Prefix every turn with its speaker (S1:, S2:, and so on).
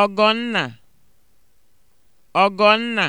S1: Ọgọnna Ọgọnna